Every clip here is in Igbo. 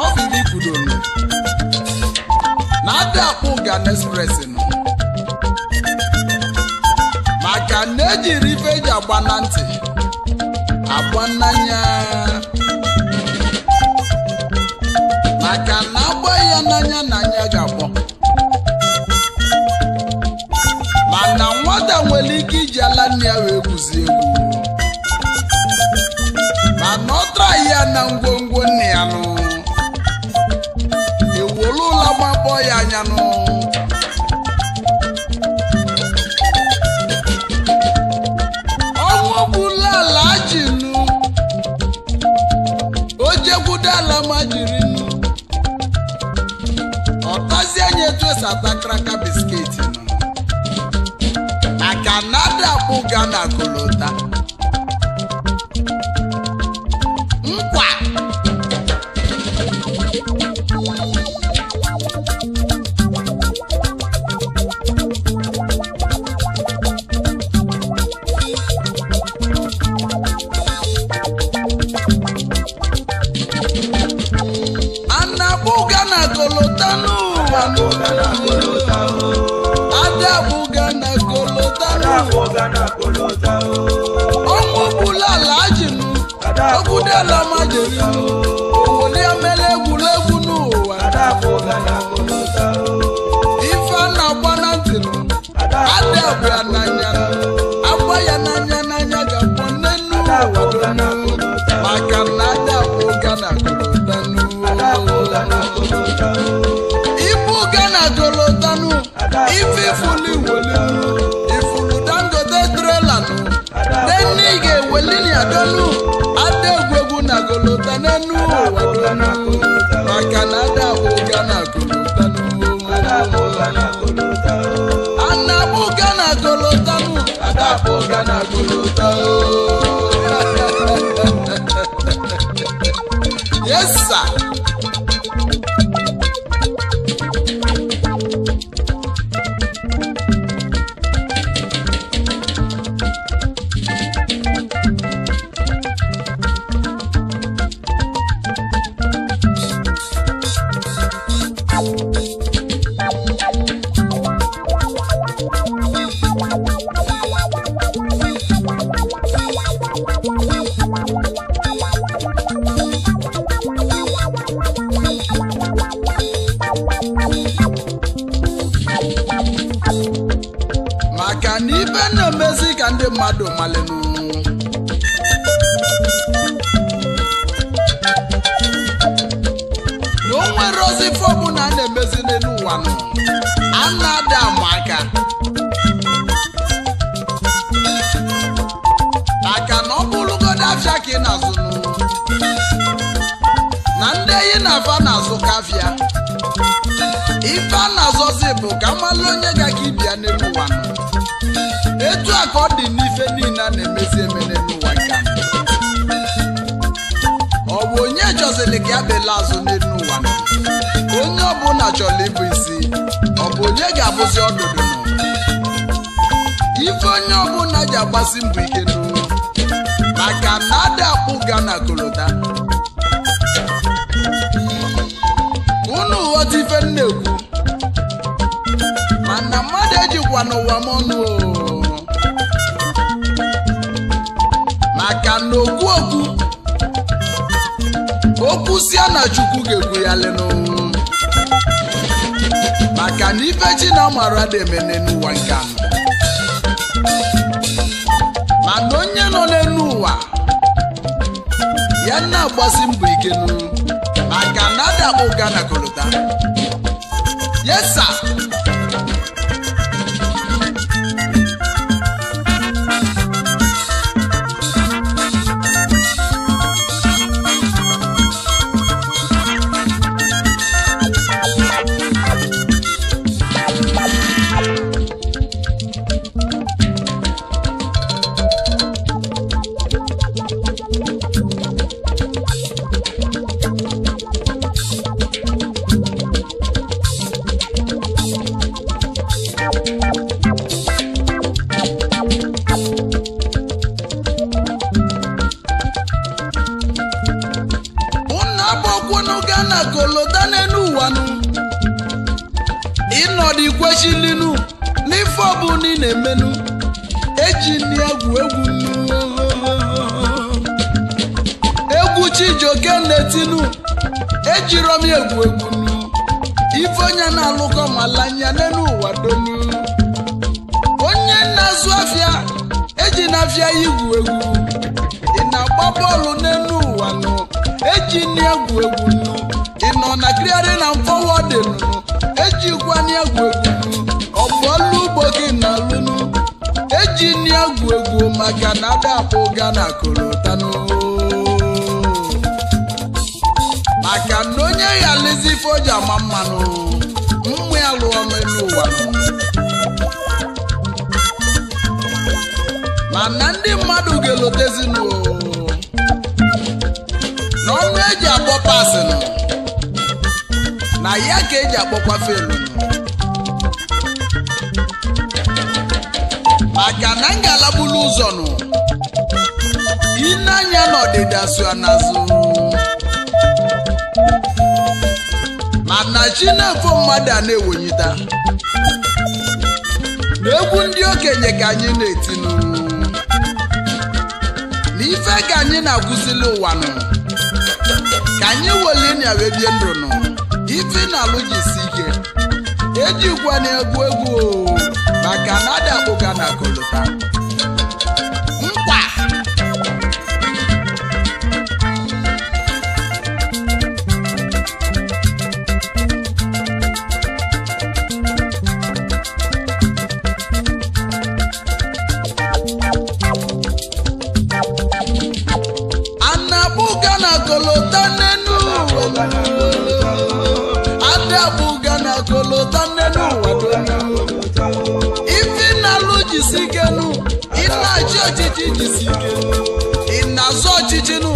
mana ọ bụ na adị akwụ Ghana Express nọ maka na ejiri ife eji agba na ntị agba n'anya maka na agba ya n'anya na anya ga-agbọ mana nwata nwere ike iji ala nne ya wee kwuzie egwu mana ọ tara ya na ngwongwo nne ya nụ ama mbọ ya anya nụ n'elu ada egwuegwu na golota n'elu ụwa maka na ada abụga na golota ana abụga na golotanu ada abụga na golota ọ dị n'ife niile a na-emezi emere n'ụwa nke ọ bụ onye chọziri ka ya azụ n'elu ụwa onye bụla chọrọ ịbụ isi ọ bụ onye ga-abụzi ọdụdụ ife onye ọbụla ji agbasi mbọ ike n'ụwa maka na adị akpụ ga na kolota unu ghọta ife m ekwu mana mmadụ ejikwa n'ụwa m ọnụ kwụsịa na chukwu ga egwu ya lenu maka na ife ji na mara emene n'ụwa nke anọ mana onye nọ n'elu ụwa ya na-agbasi mbọ ike nụ maka na adakpụ ga na kolota yesa n'ọdị ọnọdụ ikwechilinu n'ife bụla ị na-emenu eji nri egwu egwu egwu chijioke na-etinu ejiro m egwu egwu ife onye na-alụkọ malanya n'elu ụwa donu onye na-azụ afịa eji na-afịa ya igwu egwu ị na-agba bọọlụ n'elu ụwa nụ eji nri egwu egwu nụ ị nọ na kriari na dị nụ. ejikwana egwu egwu ọgbọlụ ugbo gị na lunu eji nri egwu egwu maka na adapụ ga na kolotano maka na onye ya lezi foji ama mmanụ mmụ ya lụọ n'elu ụwa mana ndị mmadụ ga-elotezinu n'ọnụ eji abọ pasịnụ. na ya ka eji akpọkwa felu maka na ngalabulu ụzọ nụ ineanya n'ọdịda so n'azụ mana chi na-efo mmadụ a na-ewonyita na egwu ndị okenye ka anyị na-etinu na ife ka anyị na akwụsịlị ụwa nụ ka anyị weli na bie ndụ iti na alụ jisi ike eji gwa na-egwu egwu maka na adakpụga na kolota ọchịchị jisi ike ị na-azụ ọchịchị nụ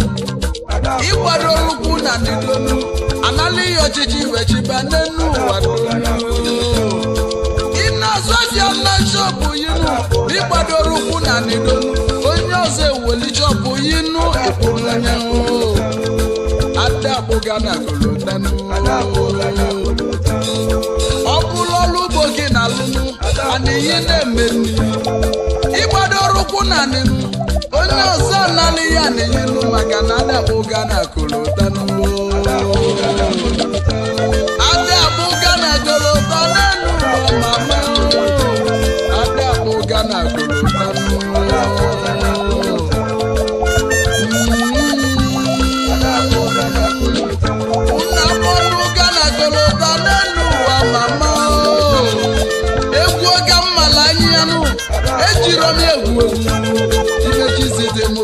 ịgbado olukwu na ndịdonu anala ihe ọchịchị wechiba n'enu ụwa ị na-azụ ọzọ na chọpụ yinu ịgbado olukwu na ndịdonu onye ọzọ eweli chọpụ yinu ịkpụrụnyanwụ adakpụga na kolotanu ọ bụrụ ọrụ ugbo gị na alụnụ ana ihe na-emeru eme ụkwụ nanị onye ọzọ nanị ya na-enyelu enye maka na ada m ụga na kụrụ ụta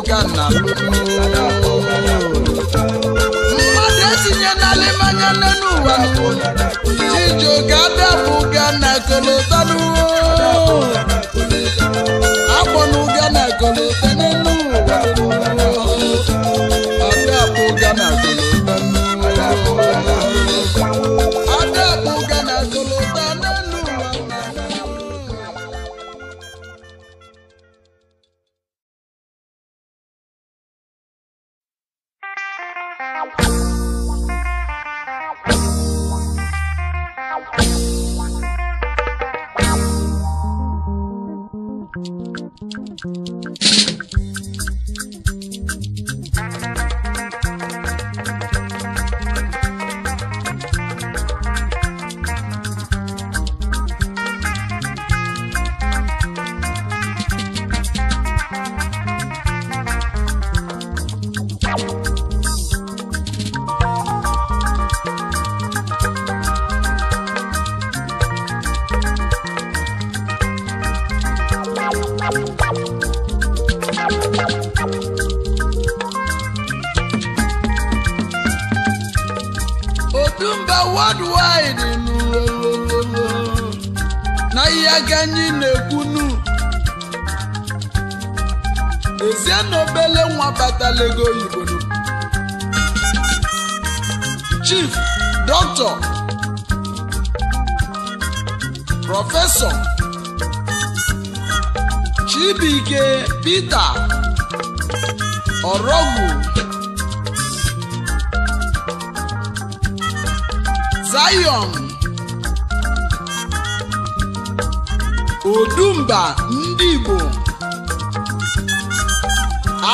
ga na mmadụ etinye n'ala ịmanya nne n'ụwa chijioge adapụ ga na kolotanu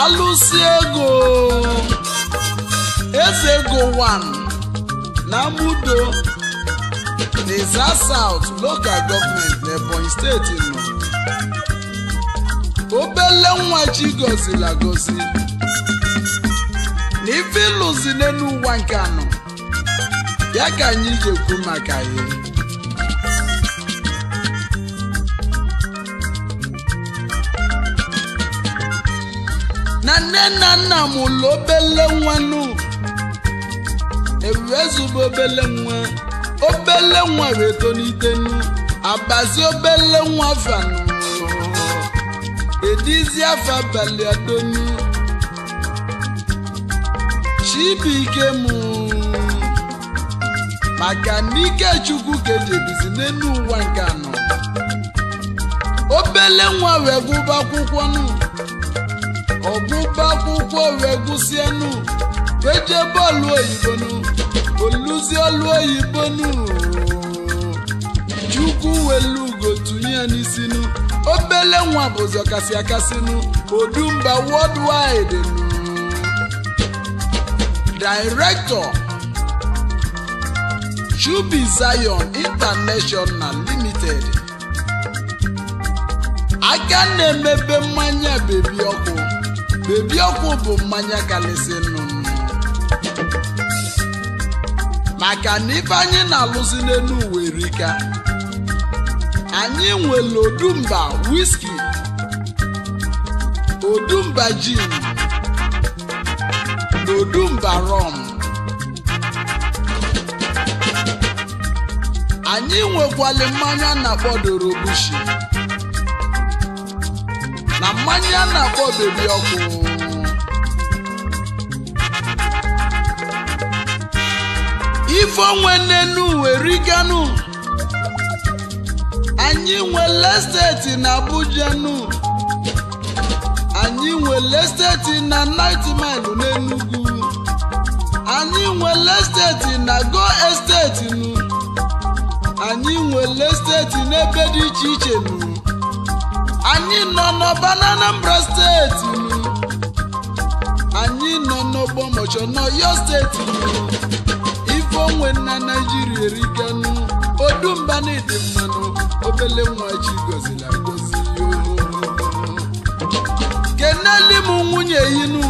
alụsi ego eze ego one na mudo n'Izza South local government na Ebonyi steeti nọ obele nwa chi gozila gozi na ife ịlụzi n'elu ụwa nke anọ ya ka anyị ga-ekwu maka ya nne na nna mụlụ obele nwa nụ ewu ezube obele nwa obele nwa wee tonite nụ abazi obele nwa vanụ edizi afọ abalị adonu chibike mụ maka n'ike chukwu ka n'elu ụwa nke anọ obele nwa wee gụba akwụkwọ nụ ọgwụgba akwụkwọ wee gwụsienu wee jee bọọlụ oyibo nụ olu oyibo chukwu welu elu gotu n'isinu obele nwa bụ ụzọ kasị nụ odumba worldwide nụ Chubi Zion International Limited aga na-emebe mmanya bebi ọkụ bebi ọkụ bụ mmanya kalịsị nnụnụ maka na ibe anyị na-alụzi n'elu werika anyị nwere odumba wiski odumba jin na odumba rọm anyị nwekwala mmanya na-akpọ obishi. na mmanya na-akpọ bebi ọkụ ife onwe nnenu weriganu anyị nwere steeti na Abuja nu anyị nwere steeti na Ninth Mile n'Enugu anyị nwere steeti na Go Estate nu anyị nwere steeti n'ebe dị iche iche nu anyị nọ n'ọba n'Anambra steeti anyị nọ n'ọgbọ mọchọ n'Ọyọ steeti ife onwe na Naijiria eriganu odumba n'ịdị mmanụ obele nwa chi gozila ngozi keneli m nwunye yinu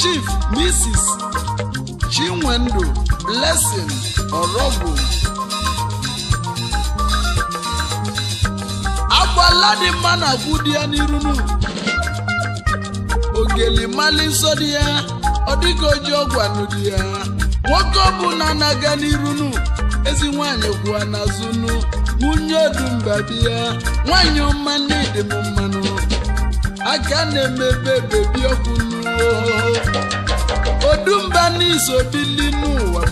Chief Mrs. Chinwendu Blessing Orobụ bụ dị mma na afụ dị ya n'iru ogeli mali nsọ dị ya ọ dịghị oji ọgwanụ dị ya nwoke ọbụla na-aga n'irunu ezi nwanyị kwụwa n'azụnụ nwunye dị ya nwanyị ọma na m mmanụ aka na-emebe bebi ọkwụnụ odumba n'ụwa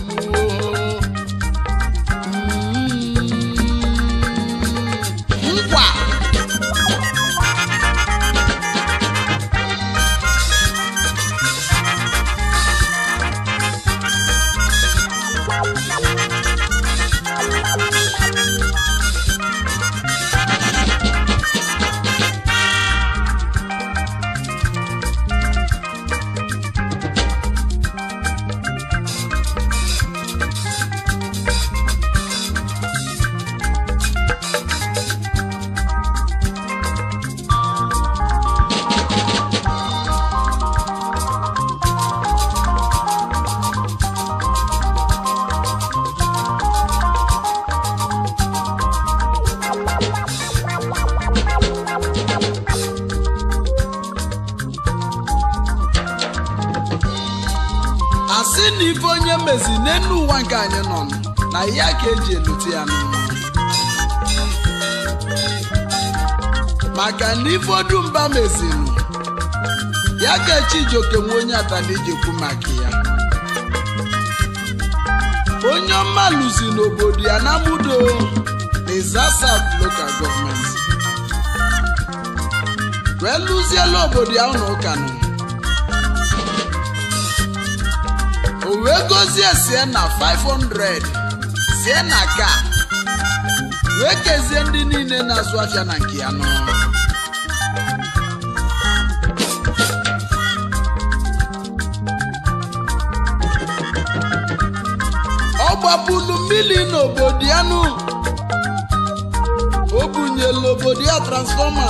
ifedu mba mezilu ya ka Chijioke nwe onye atana maka ya onye ọma luzi n'obodo ya na mudo na Izasa local government wee lụziela obodo ya ụlọ ụka nụ. o wee gozie sie na 500 sie na ka wee kezie ndị niile na-azụ afịa na nke ya nọ agbapụlu mmiri n'obodo ya nụ o obodo ya transfọma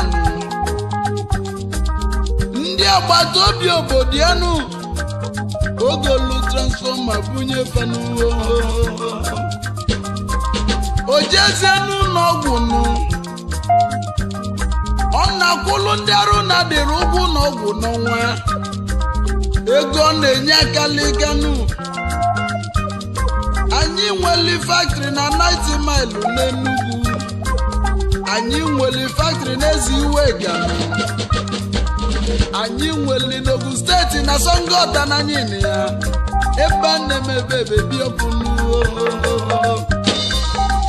ndị agbata obi obodo ya oge olu transfọma bunye fenuwo o jezie nụ ọ na-akwụlụ ndị arụ na-adịrị ụgwọ n'ọnwa ego ọ na-enye aka liganu anyị nweli faktịrị na 90 maịlụ n'Enugwu. anyị nweli faktịrị n'ezi iwe gana anyị nweli n'ogu steeti na Songota na ya ebe a na-emebe ebebiopụnuo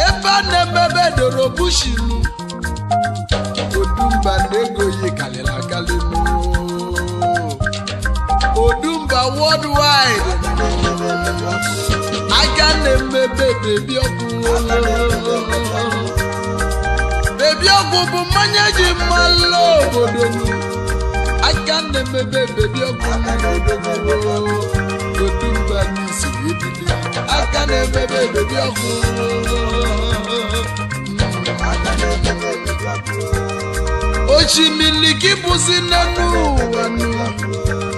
ebe a na-emebe doro bushinu odumba na-ego yi karịrị akarị odumba worldwide aka na-emebe bebi ọgwụ bebi ọgwụ bụ mmanya ji mmalụ obodo aka na-emebe bebi ọgwụ otu mba n'isi aka na-emebe bebi ọgwụ ochi milikibụzi n'elu ụwa nụ.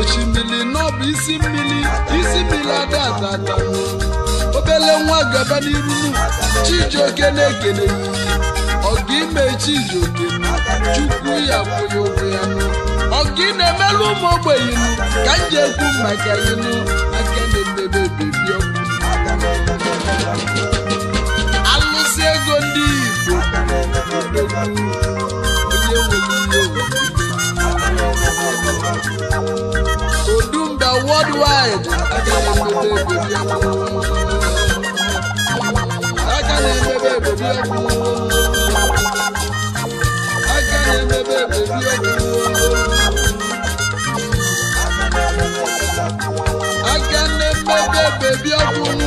osimiri n'ọbụ isi mmiri isi mmiri adaadada obele nwa gaba n'iru chijioke na-ekele ọgụ ime chijioke chukwu ya kwụghị ụgwọ ya ọgụ ị na-emelụ ụmụ ogbenye ka m ji ekwu maka ịnụ aka na-emebe bebi ọgwụ alụsị ego ndị Igbo onye nwere ihe owuwe olúwa I ajá lè bèbè bèbè ẹkùn ajá lè bèbè bèbè ẹkùn ajá I bèbè bèbè ẹkùn. Ajá lè bèbè bèbè ẹkùn.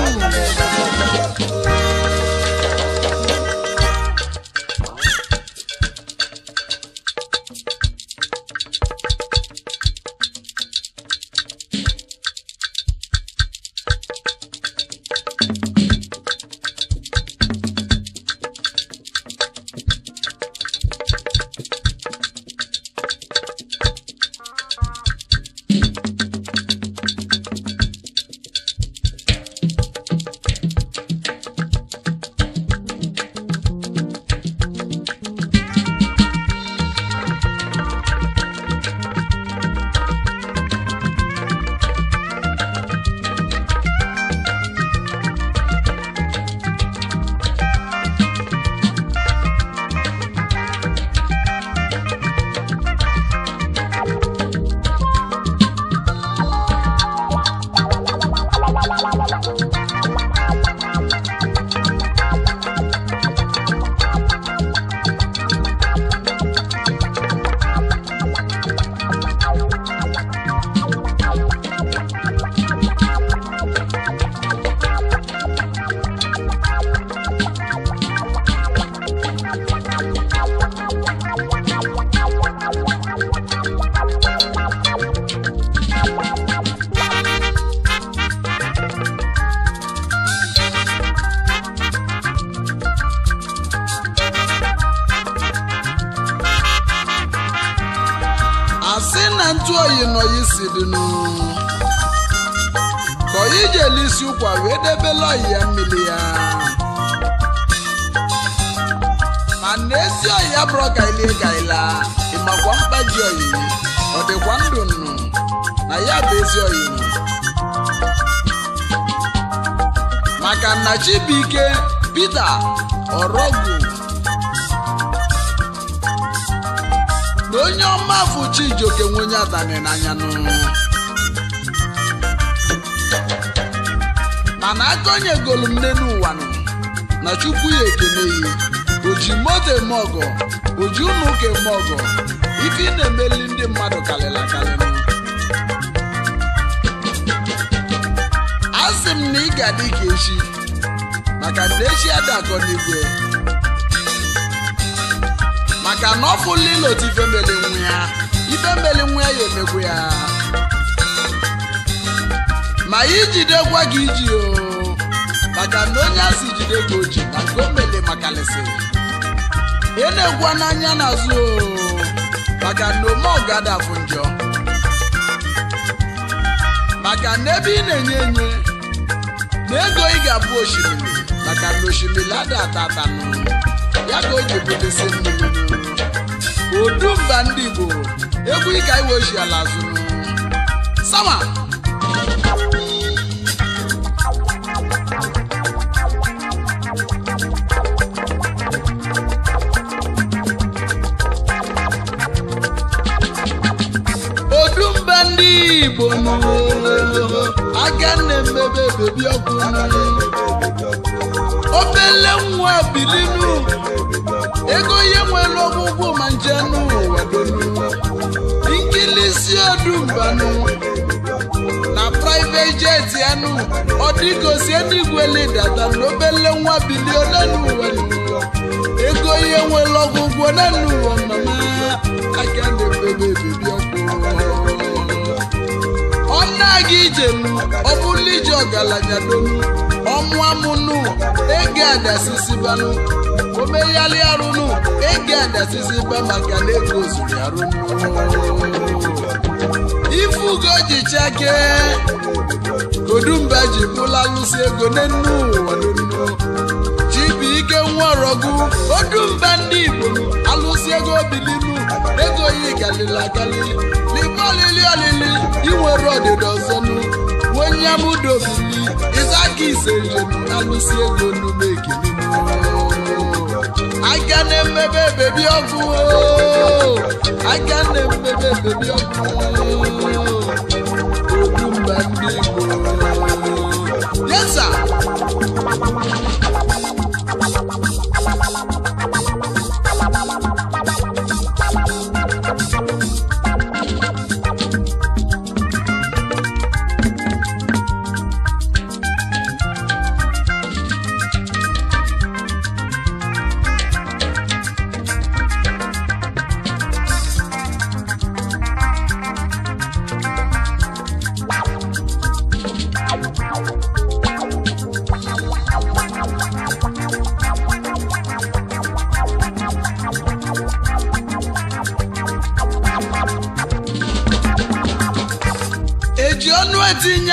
Chibike Peter Orogu na onye ọmafụ Chijioke nwenye adani n'anya mana akọnyegolu m nne n'ụwa na chukwu ya ekele ya oji moto mogo ọgọ oji ụmụ ụka eme ọgọ ife ị na-emeli ndị mmadụ karịrị akarị a sị m na ị ga-adị ka echi maka ndechi adakọ n'igwe maka na ọ fụla otu ife meli nwunye ya ife meli ya ya ya ma ijidekwa gị iji o maka na onye si jide gị oji o mele maka lesi ị e na-egwa n'anya n'azụ o maka na ome ọgada bụ njọ maka na ebe ị na-enye enye na ego ị ga-abụ osimiri kàkà lóṣèlú ládàtà tànù ya ka o ji ebutesi mmiri udu mba ndị igbo egwu ịka iwe ochi ala zụrụ sama odumba ndị igbo bebi ọkụ obele nwa bilinu ego ihe nwere ọgwụgwụ ma nje n'ụwa nkilisi odumbanụ na private jet anụ ọ dịgosi ndị gwele data na obele nwa biliona n'ụwa ego ihe nwere ọgwụgwụ na n'ụwa mama aka na-ebebe ebebi ọkụ ọnụ aga ijem ọ bụla iji ọgaranya donu ọmụamụnụ ege adasisibanụ omeyali arụnụ ege adasisiba maka na ego zuru arụnụ ife ugo ji chake kodumba ji bụla ego n'enu ụwa n'enu chibu ike nwarọgụ odumba ndị igbo alụsi ego bilinu ego yi galili agali libe olili olili inwere ọdịdọ onyeamudobili izaki isejenu nalusi ego n'ugbo ekimimo aka na-emebe bebi ọgụ aka na-emebe bebi ọgụ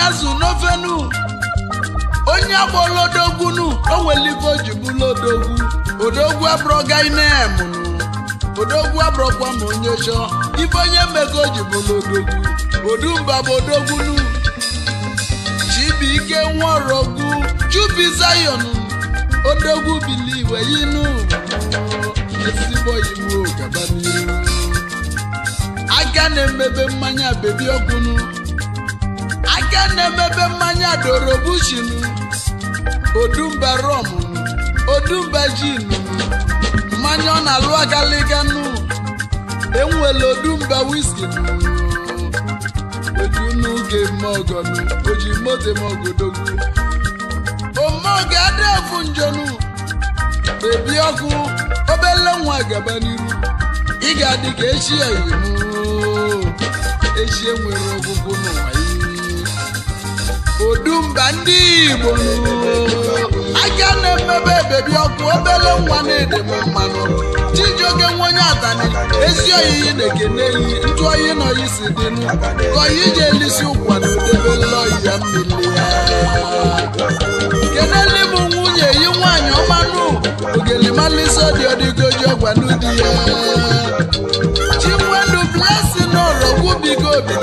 onye azụ n'ofenu onye agbọla odogbunu o welibe o ji bụla odogwu odogwu abụrọganemụnụ odogwu abụrọkwa ma onye chọ ibe onye mego o ji bụla odogwu odumba bụ odogbunu chibuike nwaorogwu chubi zayon odogwu biliwe yinu ezigbo iwu gaba n'iru aka na-emebe mmanya bebi ọgwụnụ onye na-emebe mmanya dorobushin odumba rom odumba jin mmanya ọ na-alụ agaliganu enwere odumba wiski odunuge mogonu oji mote mogodogu omoge adefu njonu bebi ọkụ obele nwa gaba n'iru ị ga-adị ka echi ya echi enwere ọgwụgwụ n'ụwa odumba ndị igbo aka na-emebe bebi ọkụ obele nwa na-edebe mmanụ chijioke nwenye atani ezi oyiyi na-ekene eyi ntụ oyi na oyi si dị nụ ka oyi ji elisi ụkwa na odebele oyi ya ya kenele bụ nwunye yi nwaanyị ọmanụ ogelimalisi dị ọdịgoji ọgwa n'ụdị ya chimwedu blessing n'ụlọ gwubigo obi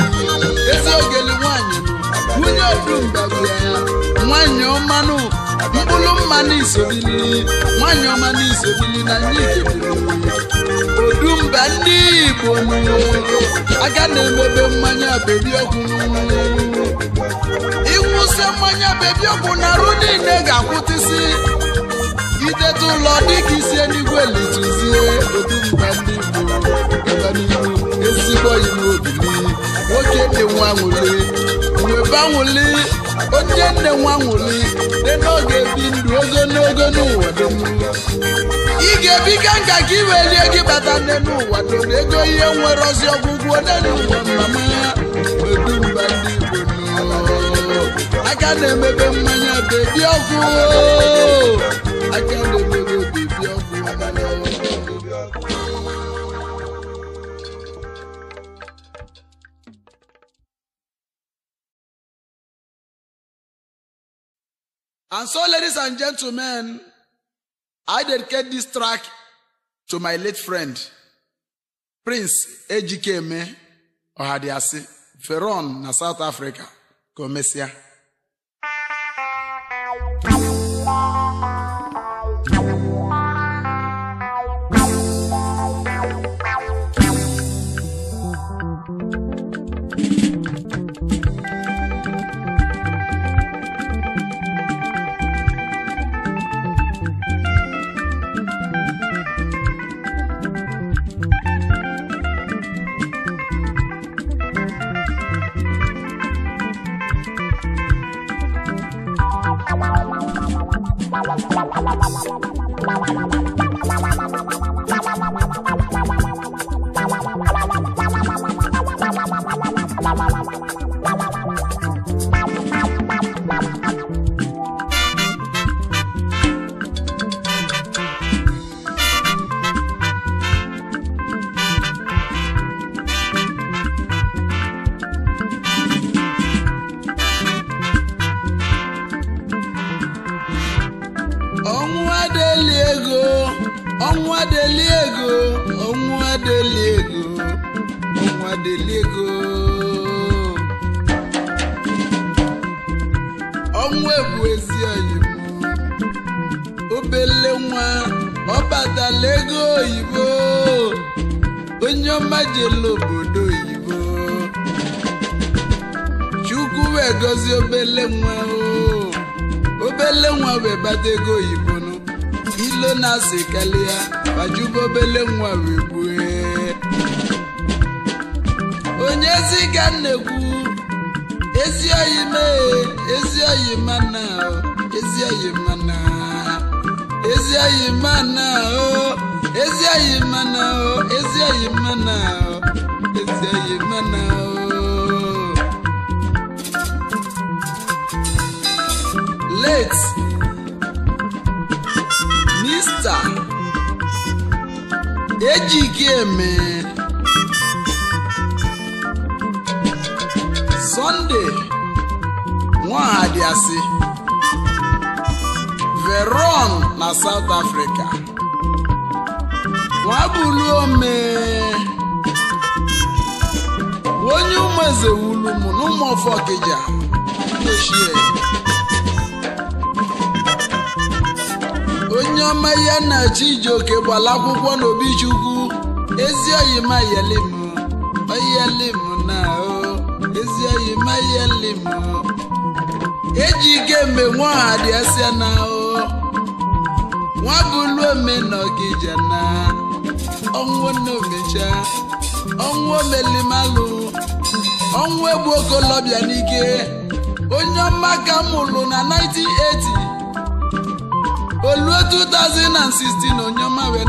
nwanyị ọmanụ mkpụrụ mmanụ isobili nwanyị ọmanụ isobili na ndị odumba ndị igbo aga na-emebe mmanya bebi ọgwụ ịwụsị mmanya bebi ọgwụ na arụ niile ga-akwụtịsị ideta ụlọ dịka isi eluigwe lituzie odumba ndị igbo ezigbo iwu obili nwoke dị nwa nwụli weba nwụli onye nne nwa nwụli dị n'oge bi ndụ ogo n'ogo n'ụwa dum ị ga-ebi ka nka ka iwelie gị bata nne n'ụwa dum ego ihe nwere ozi ọgwụgwụ onye n'ụwa mama medumba ndị Igbo aka na-emebe mmanya bebi ọkụ aka na-emebe bebi And so, ladies and gentlemen, I dedicate this track to my late friend, Prince Ejikeme Ohadiasi, Feron na South Africa, Komesia. ezi oyibo obele nwa ọbatala ego oyibo onye ọmajele obodo oyibo chukwu wee gọzie obele nwa o obele nwa wee bata ego oyibo nụ ilo na-asị kalịa bajuba obele nwa wee gbue onye ezi ga nnekwu ezi oyi mee ezi oyi mana o ezi oyi mana ezi oyi mana o ezi oyi mana o ezi oyi mana o ezi oyi mana o. late mr ejike mee. Sọnde nwaadịasị Veron na South Africa nwabuluome onye ụmụeze wulu m n'ụmụọfọ Ọkịja ochie onye ọma ya na Chijioke gbala akwụkwọ n'Obichukwu ezi oyima yelim oyelim dị eji ike mgbe nwa ọha dị ese na nwa bụlu na ọnwụ naomecha ọnwụ omelimalụ ọnwụ egbu okolobịa n'ike onye ọma ka mụrụ na 1980 oluo 2016 onye ọma wee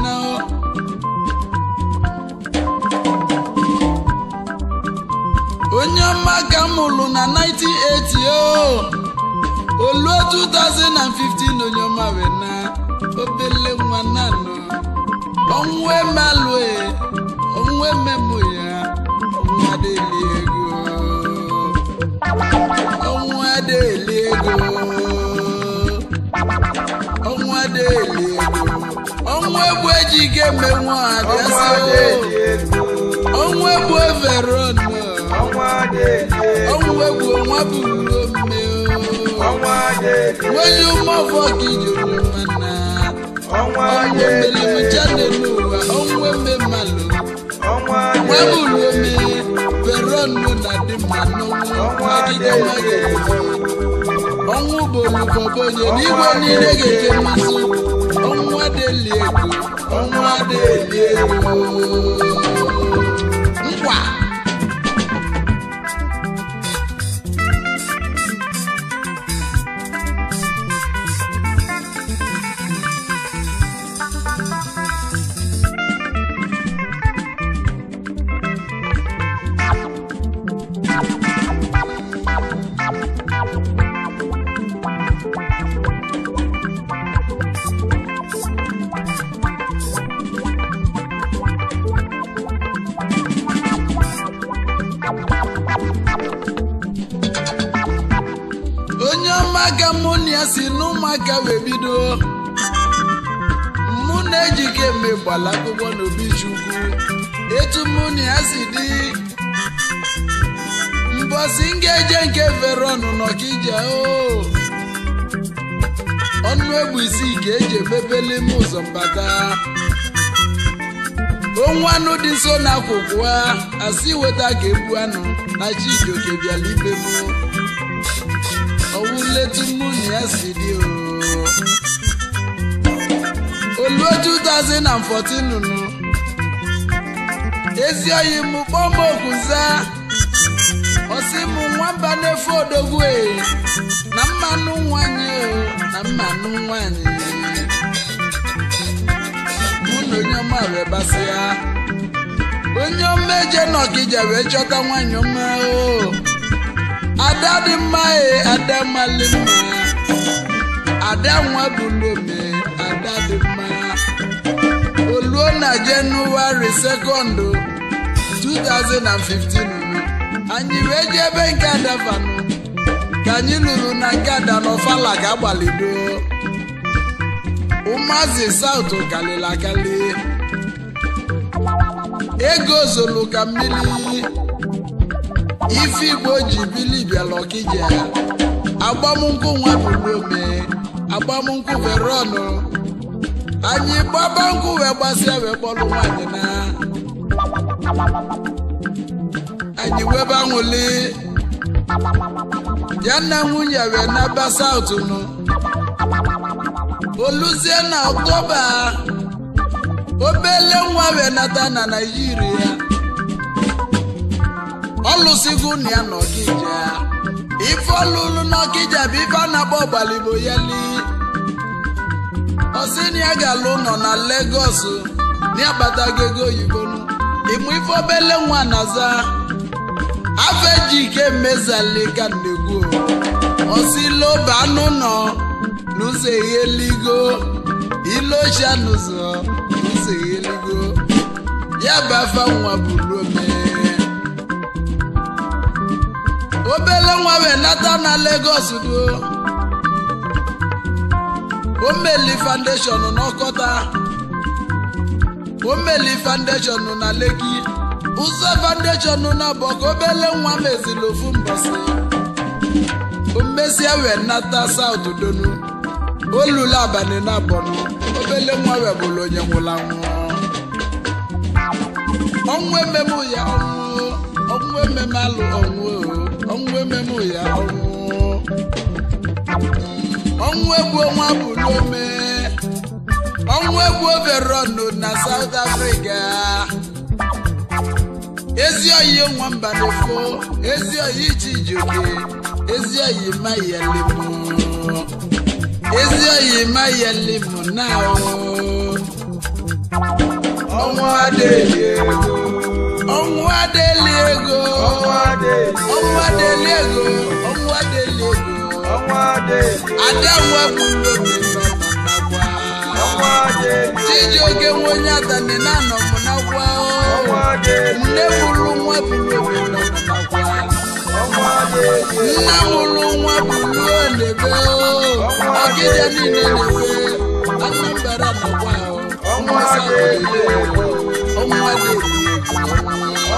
onye ọma ka m na 1980 o oluo 2015 onye ọma wee na obele nwa nanọ ọnwa emalụ ọnwa e, ememụ ya ọnwa deli ego ọnwa deli ego ọnwa deli ego ọnwụ egbu eji ga-emenwu adịasị ọnwa egbu everon ọmọ adéèké. ọmọ ewu wọn bù omi o. ọmọ adéèké. wọ́n yóò mọ fọ́ọ̀kì yòrò mọ́nà. ọmọ adéèké. ọmọ mẹlẹmu jáde ló wà ọmọ ẹmẹ mà lò. ọmọ adéèké. wọ́n bù lómi bẹ̀rọ̀ nù nàdí mànú. ọmọ adéèké. ọmọ bòlù bọ̀bọ̀ yẹn nígbà ní ẹ̀gẹ̀dẹ̀ máa sọ. ọmọ adéèlé ẹ̀kọ́ ọmọ adéèlé ẹ̀kọ́. Wow. ụmụaka mụ si n'ụmụaka wee bido mụ na ejike eme gbara akwụkwọ n'obi etu mụ a si dị mbọsi ngeje nke fere ọnụ n'ọkija o ọnụ egwu isii ka eji emebele ime ụzọ mbata onwe anụ dị nso na akwụkwọ asị weta ka ebu anụ na chijioke bịala etu nwunye ya si dị oluo 2014 nụ ezi oyi m kpọm okwuza ọsị mụ nwamba na-efe odogwu na mmanụ nwanyị na mmanụ nwanyị mụ na onye ọma wee basịa. onye ọma eje n'ọkija wee chọta nwanyị ọma o ada dị mma e ada mmalị mma ada nwa bụ n'ome ada dị mma oluo na jenụwarị sekọndụ 2015 anyị wee jebe ebe nke fanụ ka anyị lụrụ na nke ada n'ọfala ka agbalido ụmụazị saụt kalịla ego zolu ka mmiri ife igbo ji bili bịala ọkija agbamnkwụ nwadudome agbamnkwụ verọnụ anyị gbaba nkwụ wee gbasịa wee kpọrọ nwanyị na anyị webe anwụli ya na nwunye wee naba saụt nụ oluzie na ọtọba. obele nwa wee nata na naijiria Ọlụsigwu na ya n'ọkija ife ọlụlụ n'ọkija bụ ife a na-agba ọgbaligbo yali na ya ga-alụ nọ na legos na ya ego oyibo ịmụ ife obele nwa na-aza afọ eji ike mezalika ndegwu ọsị loba anụ nọ n'ụzọ eyeligo ilocha n'ụzọ n'ụzọ eyeligo ya bụ afa nwa bụrụ ome obele nwa wee nata na Lagos duo omeli foundation n'ọkọta omeli foundation na Lekki ụzọ foundation na bọk obele nwa mezili ofu mbọsị omesia wee nata South donu olulu abalị na bọnụ obele nwa wee bụrụ onye nwụrụ anwụ ọnwụ ememe ya ọnwụ ọnwụ ememe alụ ọnwụ ọnwụ ememụ ya ọnwụ egwu egwu bụ n'ome ọnwụ egwu ọnụ na South Africa ezi oyi nwamba na-efo ezi oyi iji ijoke ezi oyi ma yelimu ezi oyi ma mụ na ọnwụ adịghị egwu ọnwụ adịghị ego ọnwụ adịghị ego ọnwụ adịghị ego ada nwa bụrụ nwe onye atani na-anọ m n'akwa nne bụrụ nwa bụrụ nna mụrụ nwa bụ na-ebe ọgịja niile na-ebe anambara nakwa ọnwa ọnwa ego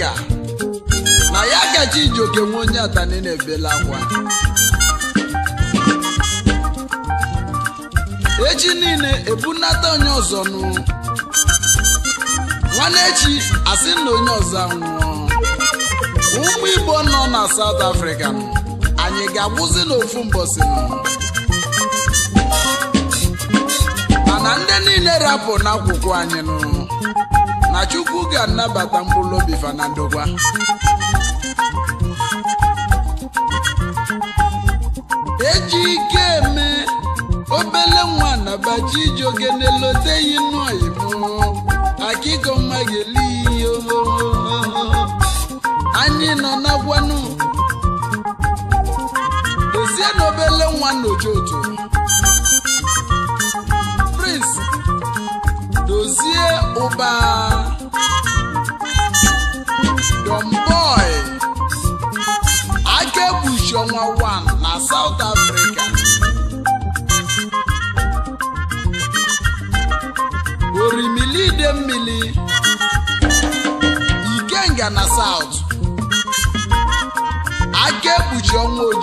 na ya kacha iji oke nwe onye atani na-ebela akwa echi niile ebunata onye ọzọ nụ nwanne echi asị na onye ọzọ anwụọ ụmụ igbo nọ na South Africa anyị ga-agwụzi n'ofu mbọsị mana ndị niile rapụ n'akwụkwọ anyị nụ na chukwu ga-anabata mkpụrụ obi fa eji ike eme obele nwa na iji ogene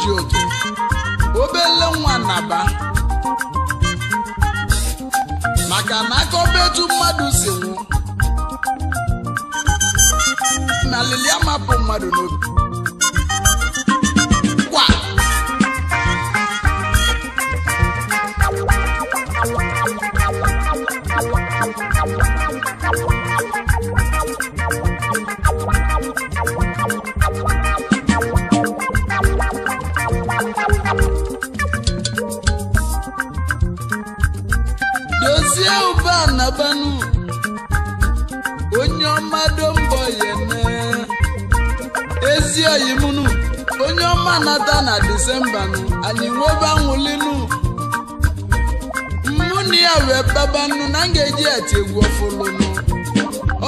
ji oke obele nwa naba maka na akọba etu mmadụ si nwụ na alili amapụ mmadụ n'obi sembanụ anyị nwebe anwụlinu mụ na ya wee babanụ na m ga-eji ati egwu ọfụlụnụ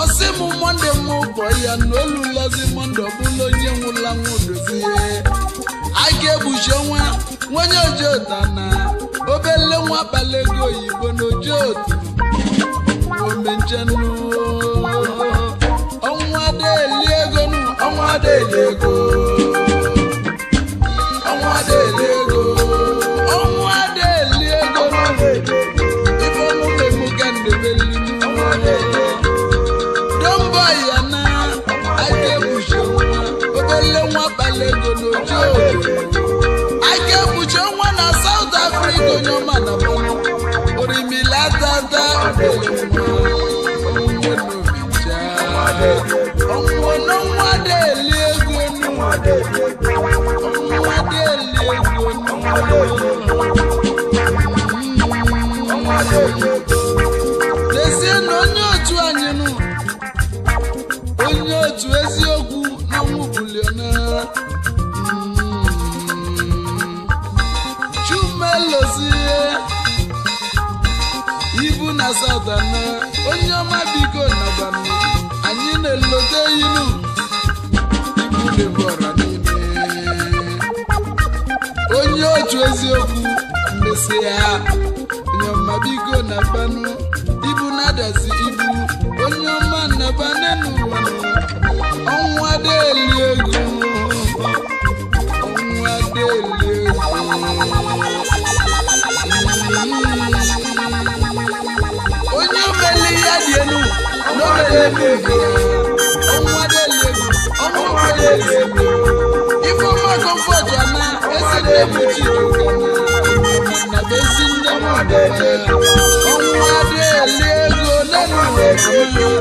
ọsị mụ mọnde m ụbọ ya na olu lọzi mọnde ọbụla onye nwụla nwodozie a ga-egbuchi ọnwa nwenye ojota na obele nwa abalị oyibo na ojotu omenjenu N'ezie na onye otu anyị nụ onye otu eziokwu n'ọnwụ buliona hmm. chumelozie ibu na na onye ọma biko nabana anyị na-elote ilu ibu adelebe ọmọ adelebe ọmọ adelebe ife ọma na na Thank you.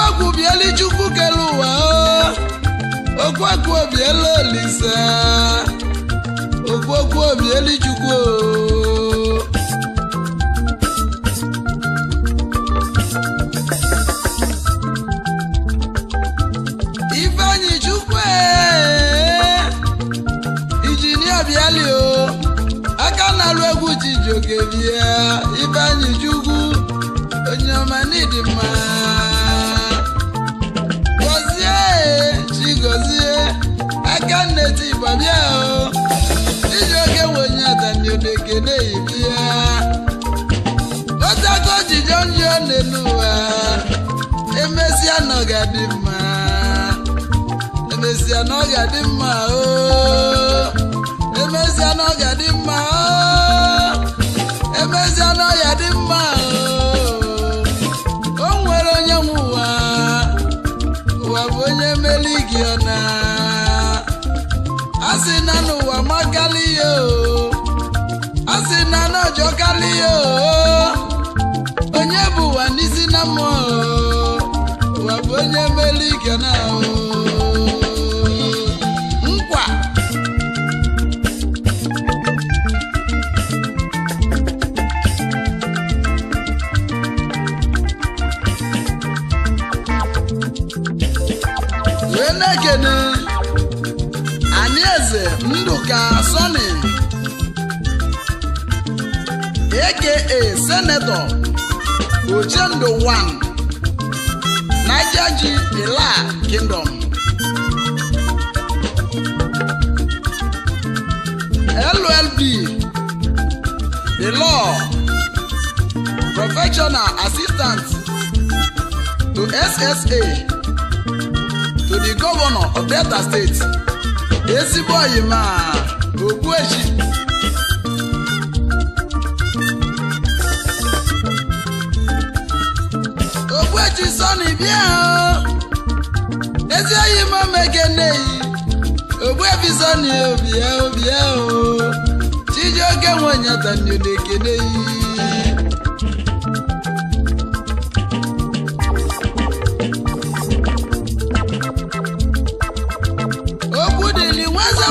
okwu bieli chukwu kere ụwa okwu oh. biela olise okwu bieli chukwu oh. ifeanyi chukwu eh. injinia biali o oh. aka na-alụ n'elu ụwa emesịa na ọ ga-adị mma emesịa na ọ ga-adị mma o na ọ ga-adị mma o na ọ ga-adị mma oh. o nwere onye nwe ụwa bụ onye meli gị ọna a sị na n'ụwa makalị ya oh. Asị a sị na n'ọjọkalị ya o oh. n'isi na mmụọ ụwa bụ onye mere ike na nkwa wee na-ekene anyị eze ndụka eke e senetọ Ogendo the one, G Ila Kingdom LLB The Law Professional Assistant to SSA to the Governor of Delta State Ezigbo Oyima Ogbuechi eji sọni bịa ezi oyi m omeke nneyi ogbuebi sọni obia obia o chijioke nwenyatani na-ekeneyi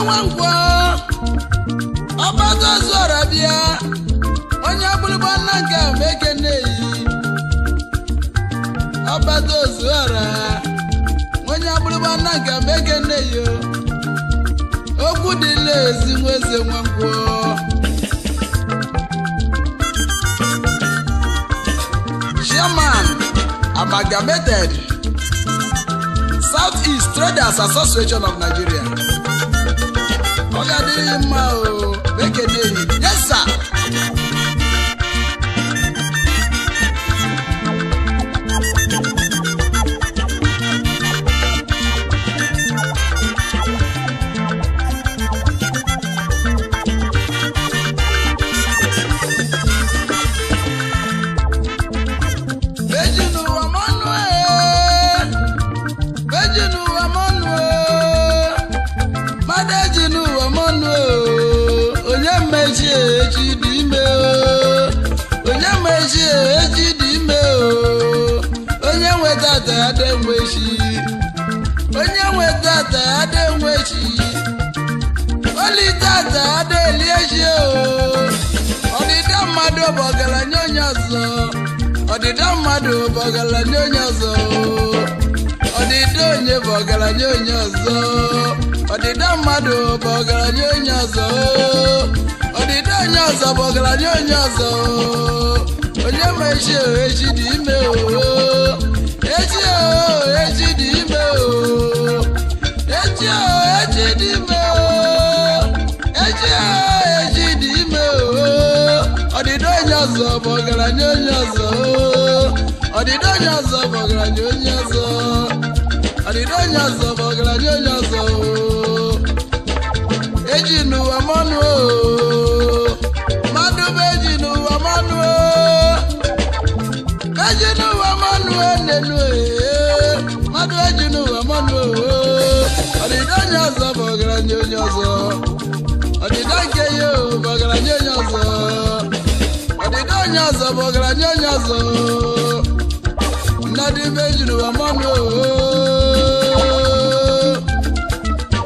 nwankwọ ọgbata ozu ọra bịa onye bụrụba nna nke meke ozuara onye agbụrụgba nna nke meke nne yo okwu dị ezi nwa eze nwakwuo German amalgamated South East Traders Association of Nigeria ọ ga adịghị mma o bụ ọgaranya onye ọzọ ọdịda mmadụ bụ ọgaranya onye ọzọ ọdịda onye bụ ọgaranya onye ọzọ ọdịda mmadụ bụ ọgaranya onye ọzọ ọdịda onye ọzọ bụ ọgaranya onye ọzọ onye ma echi echi dị ime ọdịdị onye ọzọ bụ ọgaranya onye ọzọ ọdịdị onye ọzọ bụ ọgaranya onye ọzọ eji n'ụwa mmanụ mmanụ bụ eji n'ụwa mmanụ eji n'ụwa mmanụ nenu mmanụ eji n'ụwa mmanụ ọdịdị onye ọzọ bụ ọgaranya onye ọzọ ọdịdị dị ibe ejiri oh.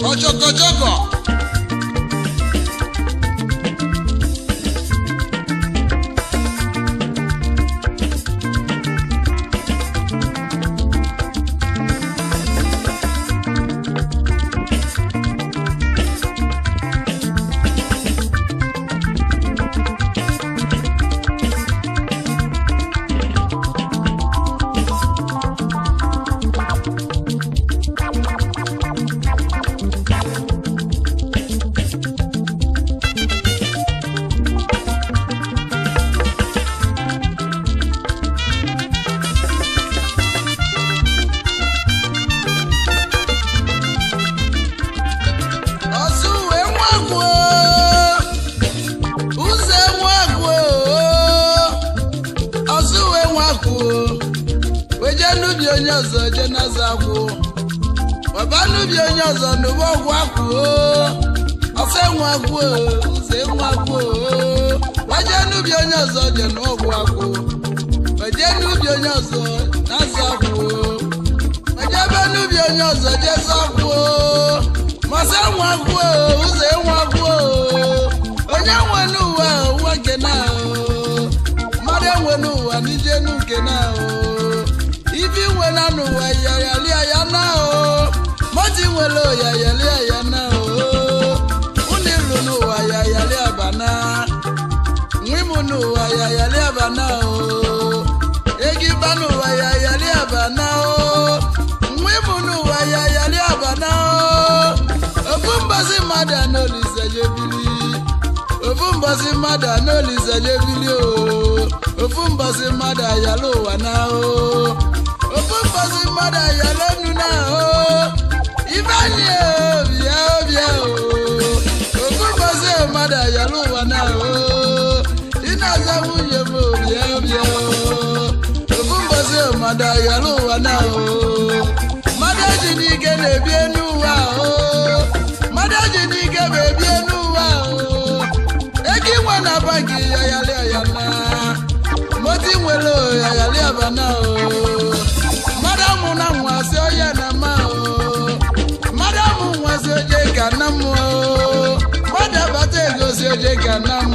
ọchọkọchọkọ banu waya yali abana o egi banu waya yali abana o nwi munu waya yali abana o ofunbasi mada n'olise yebili ofunbasi mada n'olise yebili o ofunbasi mada yalo wana o ofunbasi mada yalo nuna o ifeanyi o bia o bia o ofunbasi mada yalo wana o. aza nwunye m bịa bịa ofu mbọsi mmadụ ayọrọ ụwa na o mmadụ eji na eji n'ike inwe na banki yayalị ayana moti nwere yayalị na na o na abata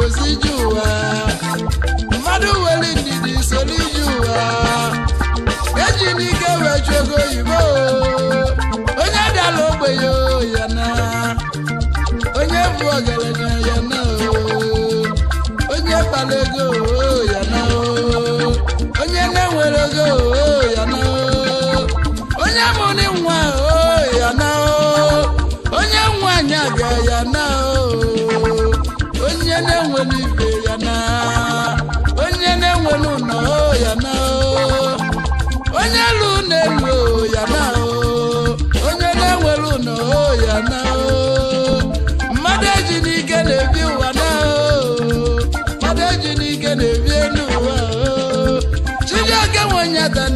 Josi João.